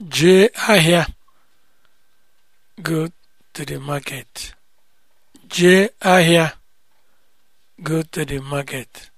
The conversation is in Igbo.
Jee ahịa go to the market. Jee ahịa go to the market.